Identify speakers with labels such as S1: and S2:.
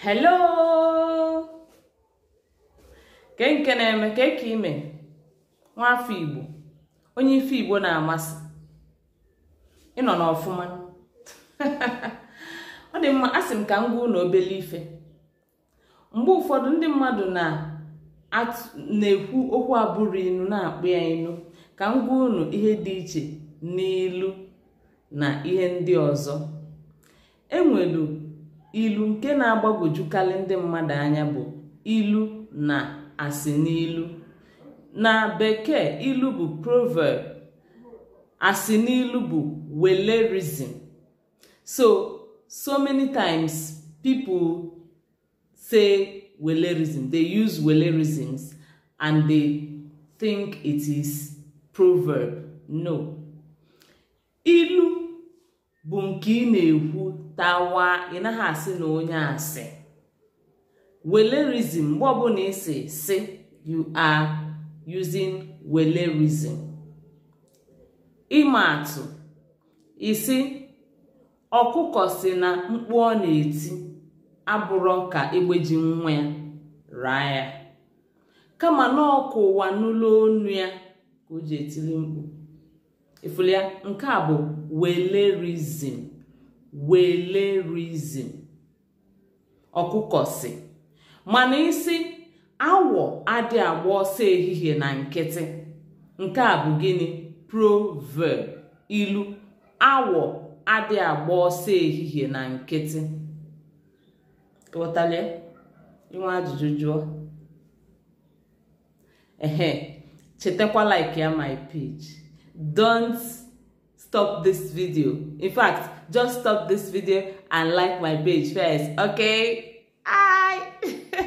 S1: hello ke na-eme ka eke ime afọ igbo onye ife igbo na-amasị ịnọ n'ọfụma ọ dị mma asị m ka m gwa ife mgbe ụfọdụ ndị mmadụ na-ekwu okwu abụrụ inu na-akpụ ya inu ka m gwa unu ihe dị iche n'ilu na ihe ndị ọzọ enwelu ilu nke na-agbagwojukarị ndị mmadụ anya bụ ilu na asị n'ilu na bekee ilu bụ proverb asị n'ilu bụ welerism so so many times people say welerism they use welerisms and they think it is proverb no ilu bụ nke ị na-ekwu tawa i naghị asị na onye asị welerizim mgbe ọbụla isi si you are using welerizim ịma atụ isi ọkụkọ si na mkpu ọ na-eti abụrọ ka egbe ji nwa ya raa ya kama na ọkụ ụwa n'ụlọ onu ya ka o ji etiri mkpu ifụlụ nke a bụ welerizim welerizim ọkụkọ si mana isi awọ adị agba ọsọ ehihie na nkịtị nke a bụ gịnị proverb ilu awọ adị agba ọsọ ehihie na nkịtị ghọtara inwe ajụjụ jụọ ehe chetakwa like ya my page don't stop this video in fact just stop this video and like my page first okay